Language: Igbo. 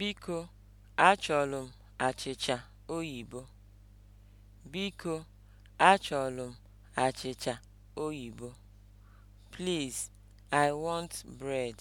Biko, achọrọ m achịcha oyibo. Biko, achọrọ m achịcha oyibo. Please, I want bread.